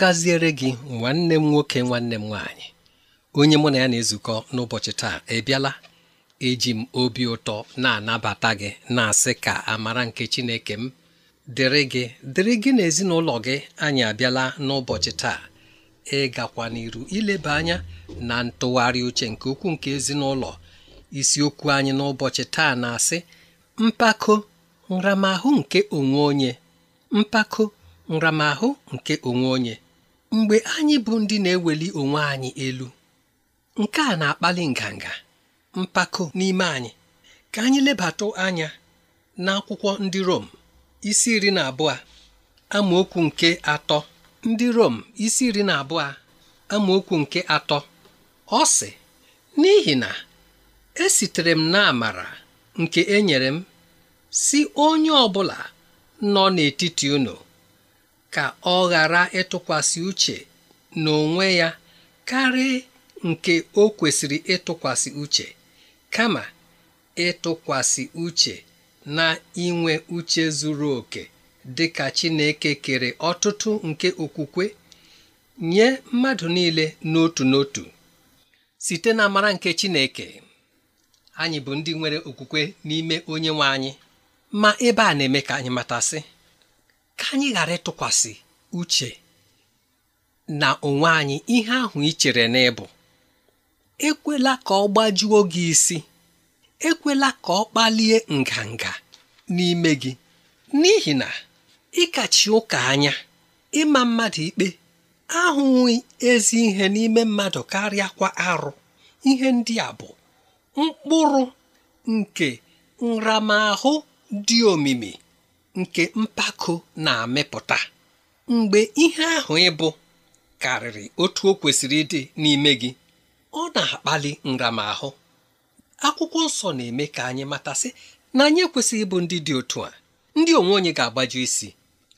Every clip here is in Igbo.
gaziere gị nwanne m nwoke nwanne m nwaanyị onye mụ na ya na-ezukọ n'ụbọchị taa ebiala eji m obi ụtọ na-anabata gị na-asị ka amara nke Chineke m dịrị gị dịrị gị na ezinụlọ gị anyị abịala n'ụbọchị taa ịgakwa n'iru ileba anya na ntụgharị uche nke ukwuu nke ezinụlọ isiokwu anyị n'ụbọchị taa na-asị mpako nramahụ nke onwe onye mpako nramahụ nke onwe onye mgbe anyị bụ ndị na-eweli onwe anyị elu nke a na-akpali nganga mpako n'ime anyị ka anyị lebata anya n'akwụkwọ ndị Rom isi iri na abụọ amaokwu nke atọ ndị Rom isi iri na abụọ amaokwu nke atọ ọ sị n'ihi na esitere m n'amara nke enyere m si onye ọ bụla nọ n'etiti unu ka ọ ghara ịtụkwasị uche n'onwe ya karịa nke o kwesịrị ịtụkwasị uche kama ịtụkwasị uche na inwe uche zuru oke dị ka Chineke kere ọtụtụ nke okwukwe nye mmadụ niile n'otu n'otu site na mara nke Chineke anyị bụ ndị nwere okwukwe n'ime onye nwe anyị ma ebe a na-eme ka anyị matasị ka anyị ghara ịtụkwasị uche na onwe anyị ihe ahụ ị chere n'ịbụ ekwela ka ọ gbajuo gị isi ekwela ka ọ kpalie nganga n'ime gị n'ihi na ịkachi ụka anya ịma mmadụ ikpe ahụghị ezi ihe n'ime mmadụ karịa kwa arụ ihe ndị a bụ mkpụrụ nke nramahụ dị omimi nke mpako na-amịpụta mgbe ihe ahụ ịbụ karịrị otu o kwesịrị ịdị n'ime gị ọ na-akpali nramahụ akwụkwọ nsọ na-eme ka anyị matasị na anyị ekwesịghị ịbụ ndị dị otu a ndị onwe onye ga-agbaju isi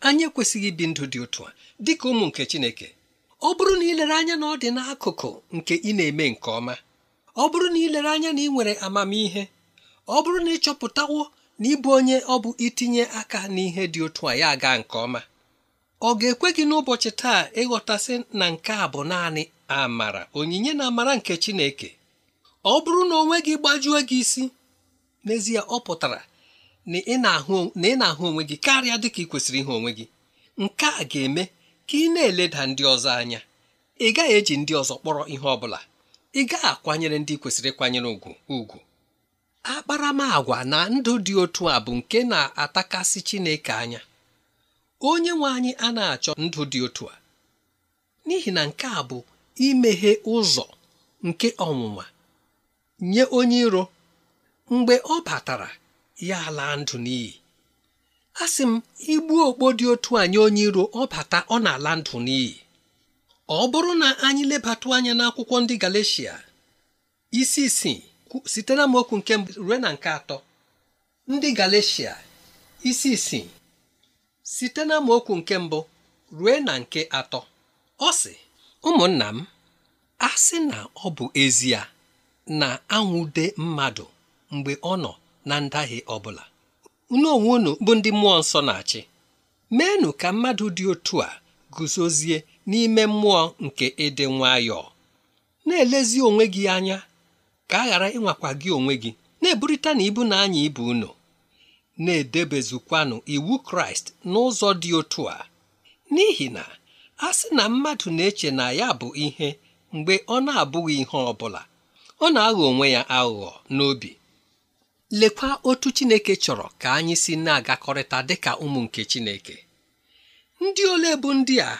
anyị ekwesịghị ibi ndụ dị otu a dị ka ụmụ nke Chineke ọ bụrụ na ilere anya na ọ dị n'akụkụ nke ị na-eme nke ọma ọ bụrụ na ilere anya na ị nwere amamihe ọ bụrụ na ị chọpụtawo n'ịbụ onye ọ bụ itinye aka n'ihe dị otu a ya aga nke ọma ọ ga-ekwe gị n'ụbọchị taa ịghọtasị na nke a bụ naanị amara onyinye na amara nke Chineke ọ bụrụ na onwe gị gbajue gị isi n'ezie ọ pụtara na ị na-ahụ onwe gị karịa dịka ị kwesịrị ihe onwe gị nke a ga-eme ka ị na-eleda ndị ọzọ anya ị gaghị eji ndị ọzọ kpọrọ ihe ọ bụla ị gaghị akwanyere ndị kwesịrị ịkwanyere ùgwù ugwu akparamagwa na ndụ dị otu a bụ nke na-atakasị Chineke anya onye nwe anyị a na-achọ ndụ dị otu a n'ihi na nke a bụ imeghe ụzọ nke ọnwụnwa nye onye iro mgbe ọ batara ya ala ndụ n'iyi a sị m igbu okpo dị otu a nye onye iro ọ bata ọ na-ala ndụ n'iyi ọ bụrụ na anyị lebata anya n'akwụkwọ ndị Galeshia isi isii site na okwu nke mbụ ruo na nke atọ ndị Galeshia isi isii site na okwu nke mbụ ruo na nke atọ ọ sị ụmụnna m asị na ọ bụ ezie na anwụde mmadụ mgbe ọ nọ na ndahie ọ bụla unu onwe bụ ndị mmụọ nsọ na-achị meenụ ka mmadụ dị otu a guzozie n'ime mmụọ nke ịdị nwayọọ na-elezi onwe gị anya ka a ghara ịnwakwa gị onwe gị na-eburịta na ibu na anya ibu unu na-edebezukwanụ iwu kraịst n'ụzọ dị otu a n'ihi na a sị na mmadụ na-eche na ya bụ ihe mgbe ọ na-abụghị ihe ọ bụla ọ na-aghọ onwe ya aghụghọ n'obi lekwa otu chineke chọrọ ka anyị si na-agakọrịta dịka ụmụ nke chineke ndị ole bụ ndị a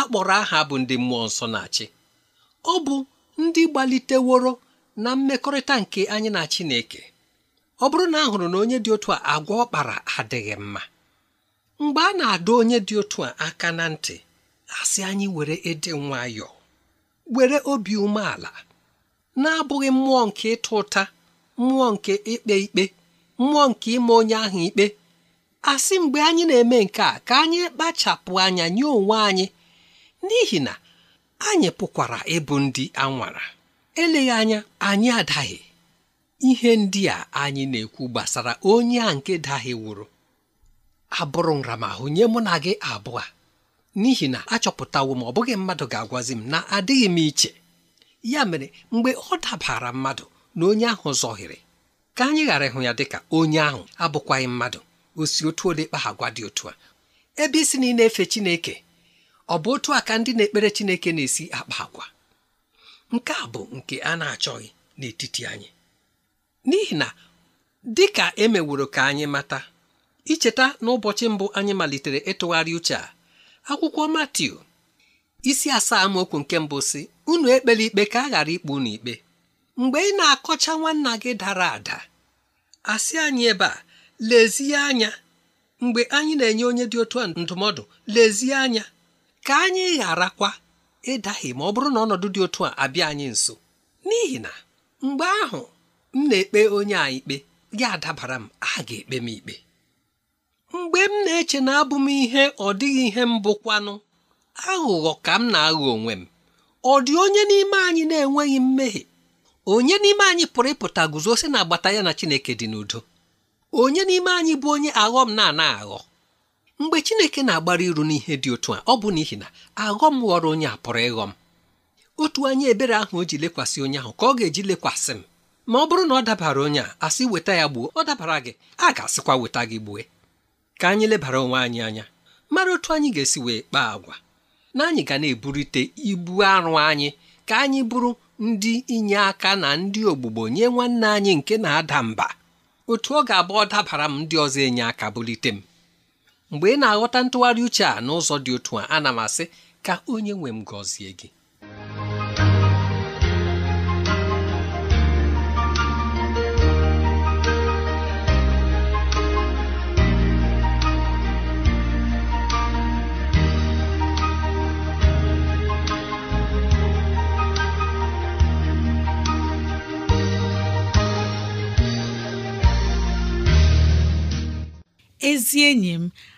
akpọrọ aha bụ ndị mmụọ nsọ na-achị ọ bụ ndị gbaliteworo na mmekọrịta nke anyị na Chineke ọ bụrụ na a hụrụ na onye dị otu a agwa ọkpara adịghị mma mgbe a na adụ onye dị otu a aka na ntị asị anyị were ịdị nwayọọ were obi umeala na-abụghị mmụọ nke ịta ụta mmụọ nke ikpe ikpe mmụọ nke ime onye ahụ ikpe asị mgbe anyị na-eme nke a ka anyị kpachapụ anya nye onwe anyị n'ihi na anyị pụkwara ịbụ ndị anwara eleghị anya anyị adaghị ihe ndị a anyị na-ekwu gbasara onye a nke wụrụ abụrụ nramahụ nye mụ na gị abụọ n'ihi na achọpụtawo m ọ bụghị mmadụ ga-agwazi m na adịghị m iche ya mere mgbe ọ dabara mmadụ na onye ahụ zọhiri ka anyị ghara ịhụ ya dịka onye ahụ abụkwaghị mmadụ osi otu ole kpa agwa dị otu a ebe isi na ị na-efe Chineke ọ bụ otu a ka ndị na-ekpere Chineke na-esi akpa agwa nke a bụ nke a na-achọghị n'etiti anyị n'ihi na dị ka emeworo ka anyị mata icheta n'ụbọchị mbụ anyị malitere ịtụgharị uche a akwụkwọ Matiu isi asaa amaokwu nke mbụ si unu ekpela ikpe ka a ghara ikpu unu ikpe mgbe ị na-akọcha nwanna gị dara ada asị anyị ebe a lezie anya mgbe anyị na-enye onye dị otu ndụmọdụ lezie anya ka anyị gharakwa ịdaghị ma ọ bụrụ na ọnọdụ dị otu a abịa anyị nso n'ihi na mgbe ahụ m na-ekpe onye a ikpe gị adabara m a ga-ekpe m ikpe mgbe m na-eche na abụ m ihe ọ dịghị ihe mbụ bụkwanụ aghụghọ ka m na-aghọ onwe m ọ dị onye n'ime anyị na-enweghị mmehie onye n'ime anyị pụrụ ịpụta guzo si na agbata ya na Chineke dị n'udo onye n'ime anyị bụ onye aghọm na-ana aghọ mgbe chineke na-agbara iru n'ihe dị otu a ọ bụ n'ihi na aghọm ghọrọ onye a pụrụ ịghọ m otu anya ebere ahụ o ji lekwasị onye ahụ ka ọ ga-eji lekwasị m ma ọ bụrụ na ọ dabara onye a asị weta ya gbuo ọ dabara gị a ga-asịkwa weta gị gbue ka anyị lebara onwe anyị anya mara otu anyị ga-esi wee kpaa agwa na anyị ga na-eburite ibu arụ anyị ka anyị bụrụ ndị inye aka na ndị ogbugbo nye nwanne anyị nke na-ada mba otu ọ ga-abụ ọ dabara m ndị ọzọ enye aka bulite m mgbe ị na-aghọta ntụgharị uche a n'ụzọ dị otu a ana m asị ka onye nwe m gọzie gị ezi enyi m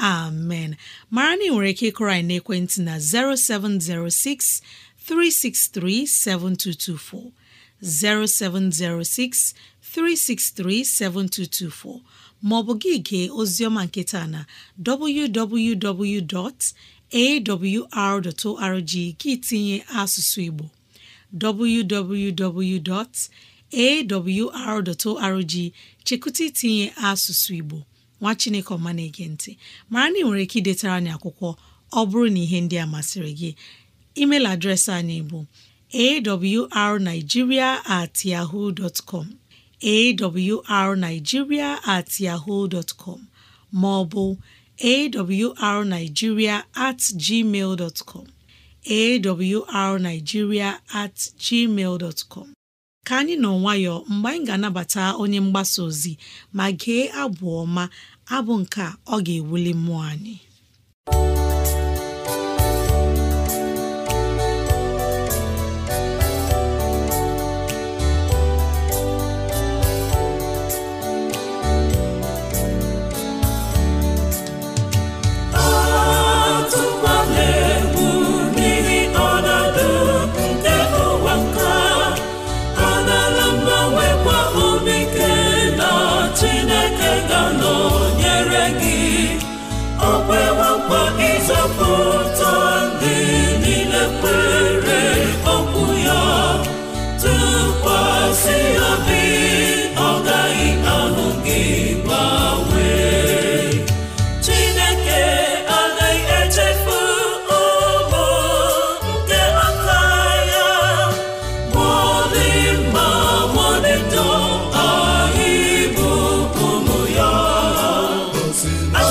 amen mara na nwere ike ịkụrọ anyị n'ekwentị na 0706 363 7224 0706 363 7224 maọbụ gị gee oziọma nke taa na www.awr.org gị tinye asụsụ Igbo www.awr.org chekụta itinye asụsụ Igbo nwa chineke ọma na-ege ntị mara na ị nwere ike idetara anyị akwụkwọ ọ bụrụ na ihe ndị a masịrị gị email adreesị anyị bụ arigiria at arigiria at com ma ọ bụ awrnigeria at gmail ka anyị nọ nwayọọ mgbe anyị ga-anabata onye mgbasa ozi ma gee abụ ọma abụ nke ọ ga-ewuli mmụọ anyị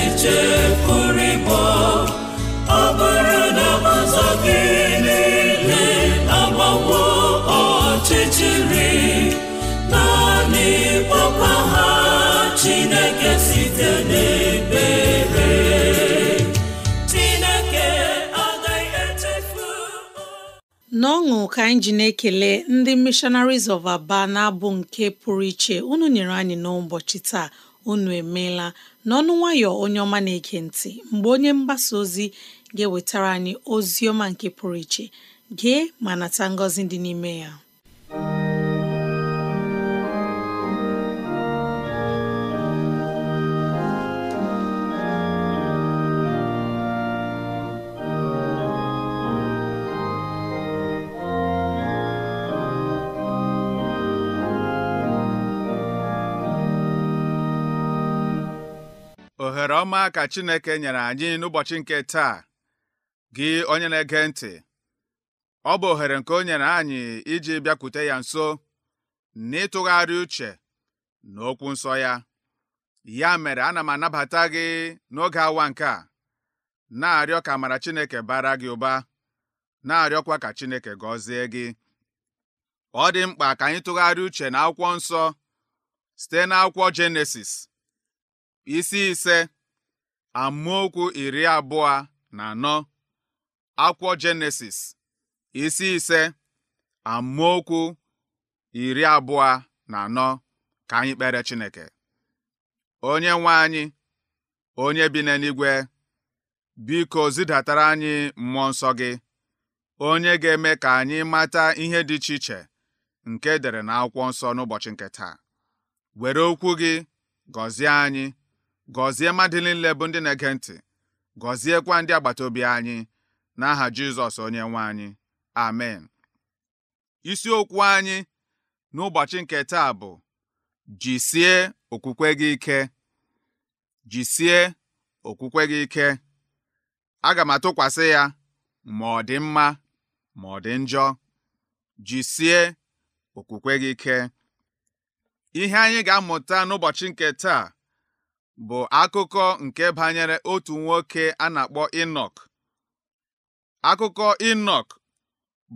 echiche pụrụ ịbọ ọ bụrụ na ụzọ gị niile agbawo ọchịchịrị naanị kpọkwa ha Chineke site n'ebere Chineke agaghị echefu n'ọṅụ ka anyị ji na-ekele ndị Missionaries of Aba na-abụ nke pụrụ iche unu nyere anyị n'ụbọchị taa unu emeela n'ọnụ nwayọ onye ọma na-ege ntị mgbe onye mgbasa ozi ga-ewetara anyị ozi ọma nke pụrụ iche gee ma nata ngọzi dị n'ime ya nwere ọma ka Chineke nyere anyị n'ụbọchị nke taa gị onye na-ege ntị ọ bụ ohere nke o nyere anyị iji bịakwute ya nso n'ịtụgharị uche okwu nsọ ya ya mere ana m anabata gị n'oge awa nke a na-arịọ ka mara Chineke bara gị ụba na-arịọkwa ka Chineke gọzie gị ọ dị mkpa ka anyị tụgharịa uche na akwụkwọ nsọ site n'akwụkwọ Jenesis isi ise amaokwu iri abụọ na anọ akwụkwọ Jenesis isi ise amaokwu iri abụọ na anọ ka anyị kpere Chineke onye nwe anyị onye bi n'eluigwe biko zidatara anyị mmụọ nsọ gị onye ga-eme ka anyị mata ihe dị iche iche nke e dere na akwụkwọ nsọ n'ụbọchị nke taa were okwu gị gọzie anyị gọzie mmadụ niile ndị na-ege ntị gọziekwa ndị agbata obi anyị n'aha Jizọs onye nwe anyị amen isiokwu anyị n'ụbọchị nke taa bụ jisie okwukwe gị ike jisie okwukwe gị ike aga m atụkwasị ya ma ọ dị mma ma ọ dị njọ jisie okwukwe gị ike ihe anyị ga-amụta n'ụbọchị nke taa bụ akụkọ nke banyere otu nwoke a na-akpọ Inọk. Akụkọ Inọk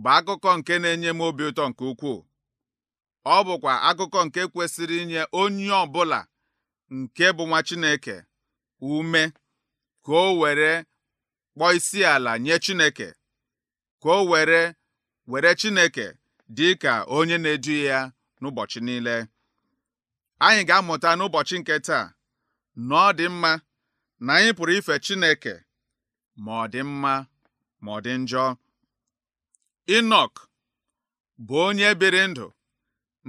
bụ akụkọ nke na-enye m obi ụtọ nke ukwuu. Ọ bụkwa akụkọ nke kwesịrị inye onye ọbụla nke bụ nwa Chineke ume ka o were kpọọ isi ala nye Chineke ka o were were Chineke dị ka onye na-edu ya n'ụbọchị niile. Anyị ga-amụta n'ụbọchị nke taa na ọ dị mma na anyị pụrụ ife Chineke ma ọ dị mma ma ọ dị njọ inok bụ onye biri ndụ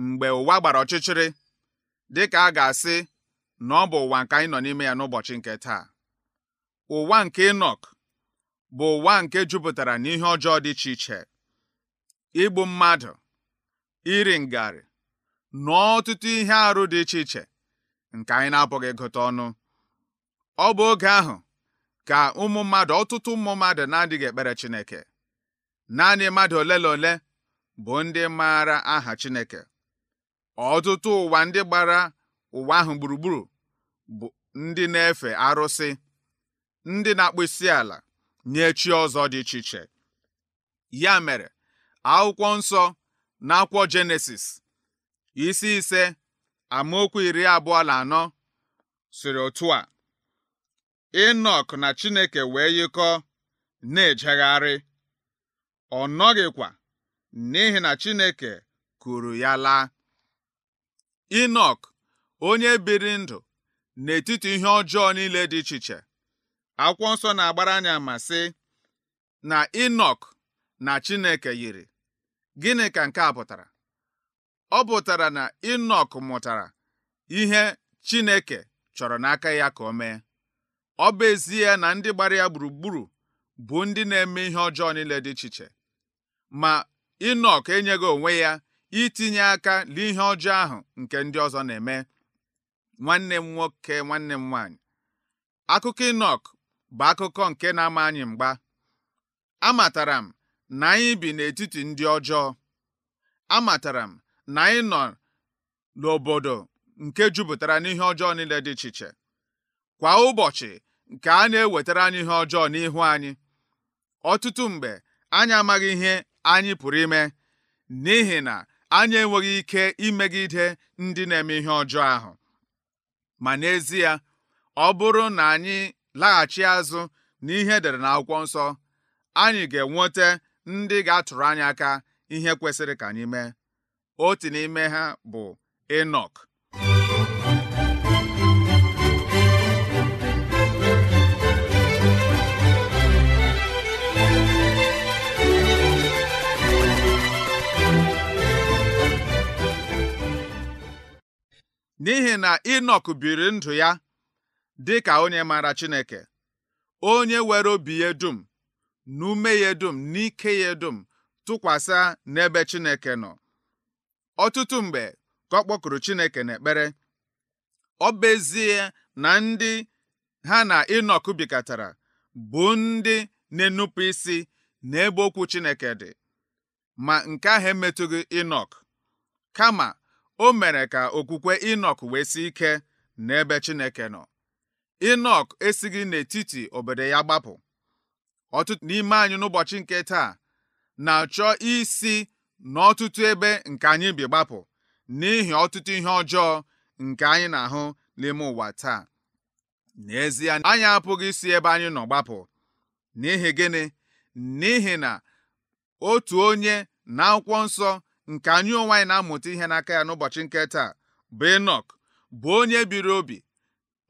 mgbe ụwa gbara ọchịchịrị dị ka a ga-asị na ọ bụ ụwa nke anyị nọ n'ime ya n'ụbọchị nke taa ụwa nke Inọk bụ ụwa nke jupụtara n'ihe ọjọọ dị iche iche igbu mmadụ iri ngarị na ọtụtụ ihe arụ dị iche iche nke anyị na-apụghị ịgụta ọnụ ọ bụ oge ahụ ka ụmụ mmadụ ọtụtụ ụmụ mmadụ na-adịghị ekpere Chineke naanị mmadụ ole na ole bụ ndị maara aha Chineke ọtụtụ ụwa ndị gbara ụwa ahụ gburugburu bụ ndị na-efe arụsị ndị na-akpụ isi ala nye chi ọzọ dị iche iche ya mere akwụkwọ nsọ na akwụkwọ Jenesis isi ise amaokwu iri abụọ na anọ siri otu a Enọk na Chineke wee yikọọ na-ejegharị ọ nọghịkwa n'ihi na Chineke kuru ya laa Enọk onye biri ndụ n'etiti ihe ọjọọ niile dị iche iche akwụkwọ nsọ na-agbara anya ma sị na Enọk na Chineke yiri gịnị ka nke a pụtara ọ bụtara na inok mụtara ihe Chineke chọrọ n'aka ya ka o mee ọ bụ ezi ya na ndị gbara ya gburugburu bụ ndị na-eme ihe ọjọọ niile dị iche iche ma inok enyeghị onwe ya itinye aka n'ihe ọjọọ ahụ nke ndị ọzọ na-eme nwanne m nwoke nwanne m nwaanyị akụkọ inok bụ akụkọ nke na-ama anyị mgba amatara m na anyị bi n'etiti ndị ọjọọ amatara m na anyị nọ n'obodo nke jupụtara n'ihe ọjọọ niile dị iche iche kwa ụbọchị nke a na-ewetara anyị ihe ọjọọ n'ihu anyị ọtụtụ mgbe anyị amaghị ihe anyị pụrụ ime n'ihi na anyị enweghị ike imegide ndị na-eme ihe ọjọọ ahụ ma n'ezie ọ bụrụ na anyị laghachi azụ na e dere edere akwụkwọ nsọ anyị ga-enweta ndị ga-atụrụ anyị aka ihe kwesịrị ka anyị mee otu n'ime ha bụ Enoch. n'ihi na Enoch biri ndụ ya dị ka onye maara Chineke onye were obi ya dum n'ume ya dum ike ya dum tụkwasị n'ebe Chineke nọ ọtụtụ mgbe ka ọ kpọkụrụ Chineke n'ekpere ọ bezie na ndị ha na inok bikọtara bụ ndị na-enupụ isi n'ebe okwu Chineke dị ma nke ahụ emetụghị inok kama o mere ka okwukwe inok wee si ike n'ebe Chineke nọ Inọk esighị n'etiti obodo ya gbapụ ọtụtụ n'ime anyị n'ụbọchị nke taa na-achọ isi n'ọtụtụ ebe nke anyị bi gbapụ n'ihi ọtụtụ ihe ọjọọ nke anyị na-ahụ n'ime ụwa taa n'ezie anyị apụghị isi ebe anyị nọ gbapụ n'ihi gịnị n'ihi na otu onye na akwụkwọ nsọ nke anyị onwe anyị na-amụta ihe n'aka ya n'ụbọchị nke taa bụ Enọk bụ onye biri obi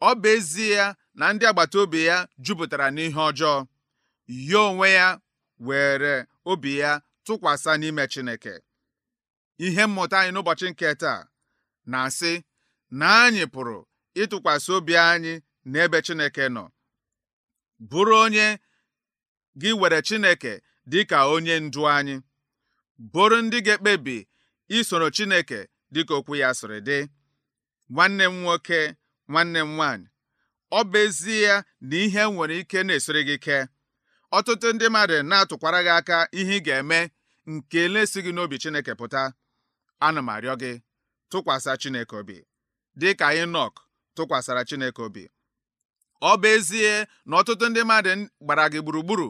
ọ bụ ezie ya na ndị agbata obi ya jupụtara n'ihe ọjọọ ya onwe ya were obi ya tụkwasa n'ime Chineke ihe mmụta anyị n'ụbọchị nke taa na-asị na anyị pụrụ ịtụkwasị obi anyị n'ebe Chineke nọ bụrụ onye gị were Chineke dị ka onye ndu anyị bụrụ ndị ga-ekpebi isoro Chineke dịka okwu ya sịrị dị nwanne m nwoke nwanne m nwaanyị ọ bụ ezie na ihe nwere ike na-esiri gị ike ọtụtụ ndị mmadụ na-atụkwara gị aka ihe ị ga-eme nke na gị n'obi Chineke pụta ana m arịọ gị tụkwasị Chineke obi dị ka Inọk tụkwasara Chineke obi ọ bụ ezie na ọtụtụ ndị mmadụ gbara gị gburugburu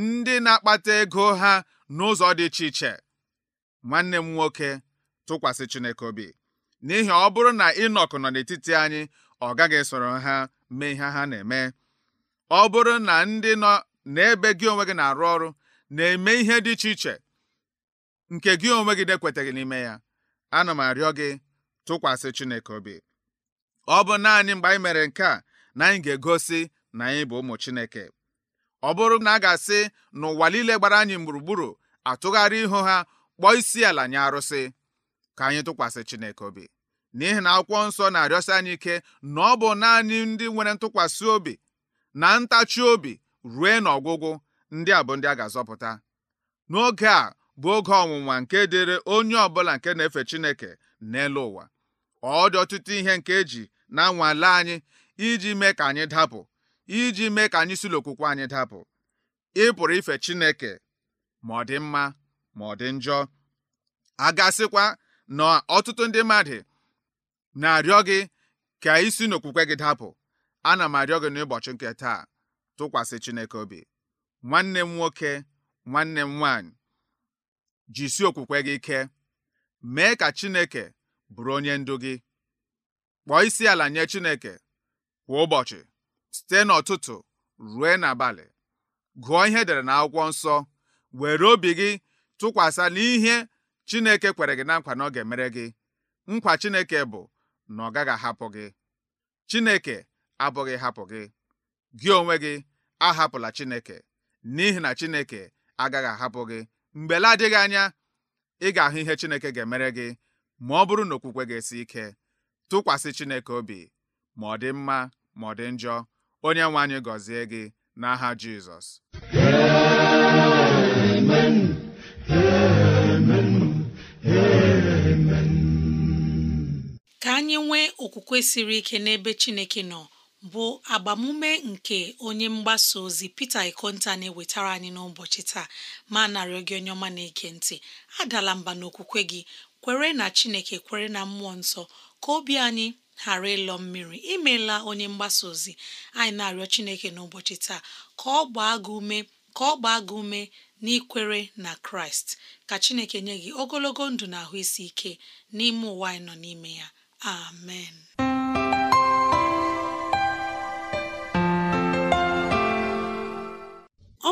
ndị na-akpata ego ha n'ụzọ dị iche iche nwanne m nwoke tụkwasị Chineke obi n'ihi ọ bụrụ na inok nọ n'etiti anyị ọ gaghị soro ha mee ihe ha na-eme ọ bụrụ na ndị nọ n'ebe gị onwe gị na-arụ ọrụ na-eme ihe dị iche iche nke gị onwe gị dekwetaghị n'ime ya ana m arịọ gị tụkwasị Chineke obi ọ bụ naanị mgbe anyị mere nke a na anyị ga-egosi na anyị bụ ụmụ Chineke ọ bụrụ na a ga-asị na ụwa niile gbara anyị gburugburu atụgharị ihu ha kpọọ isi ala nye arụsị ka anyị tụkwasị Chineke obi n'ihi na akwụkwọ nsọ na-arịọsi anyị ike na ọ bụ naanị ndị nwere ntụkwasị obi na ntachi obi rue n'ọgwụgwụ ndị a bụ ndị a ga-azọpụta n'oge a bụ oge ọnwụnwa nke dịrị onye ọbụla nke na-efe Chineke n'elu ụwa ọ dị ọtụtụ ihe nke eji na-anwale anyị iji mee ka anyị dapụ iji mee ka anyị si n'okwukwe anyị dapụ ị pụrụ ife Chineke ma ọ dị mma ma ọ dị njọ a gasịkwa na ọtụtụ ndị mmadụ na-arịọ gị ka isi n'okwukwe gị dapụ ana m arịọ gị n'ụbọchị nke taa tụkwasị Chineke obi nwanne m nwoke nwanne m nwaanyị jisi okwukwe gị ike mee ka Chineke bụrụ onye ndu gị kpọọ isi ala nye Chineke kwa ụbọchị site n'ụtụtụ rue n'abalị gụọ ihe edere akwụkwọ nsọ were obi gị tụkwasị n'ihe Chineke kwere gị na nkwa na ọ ga-emere gị nkwa Chineke bụ na ọ gaghị ahapụ gị Chineke abụghị hapụ gị gị onwe gị ahapụla Chineke n'ihi na Chineke agaghị ahapụ gị mgbe la adịghị anya ị ga-ahụ ihe Chineke ga-emere gị ma ọ bụrụ na okwukwe ga-esi ike tụkwasị Chineke obi ma ọ dị mma ma ọ dị njọ onye nwe anyị gọzie gị n'aha Jizọs amen amen amen ka anyị nwee okwukwe siri ike n'ebe Chineke nọ bụ agbamume nke onye mgbasa ozi pete Ikonta na-ewetara anyị n'ụbọchị taa ma narịọ gị onye ọma na-ege ntị adala mba n'okwukwe gị kwere na Chineke kwere na mmụọ nsọ ka obi anyị ghara ịlọ mmiri imela onye mgbasa ozi anyị na-arịọ Chineke n'ụbọchị taa ka ọ gbaa gị ume ka ọ gbaa gị ume n'ikwere na Kraịst ka Chineke nye gị ogologo ndụ na ahụ isi ike n'ime ụwa anyị nọ n'ime ya amen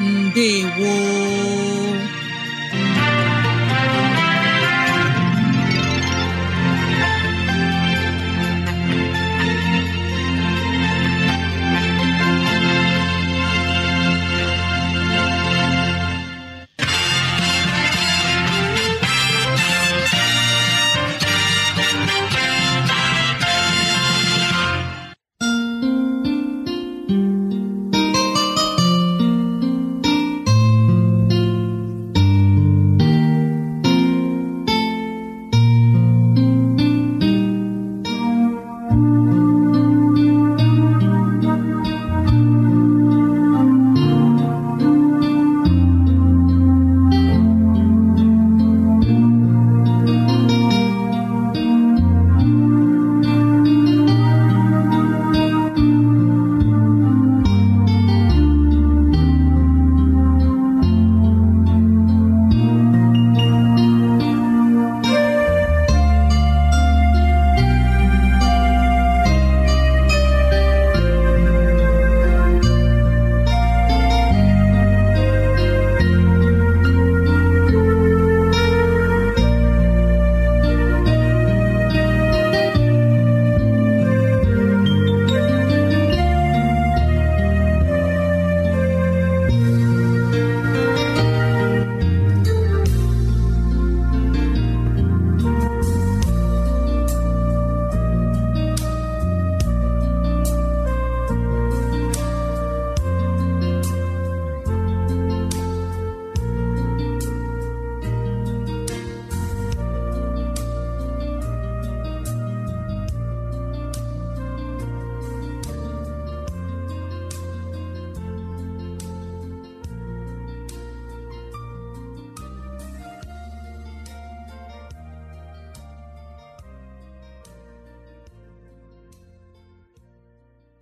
ndewo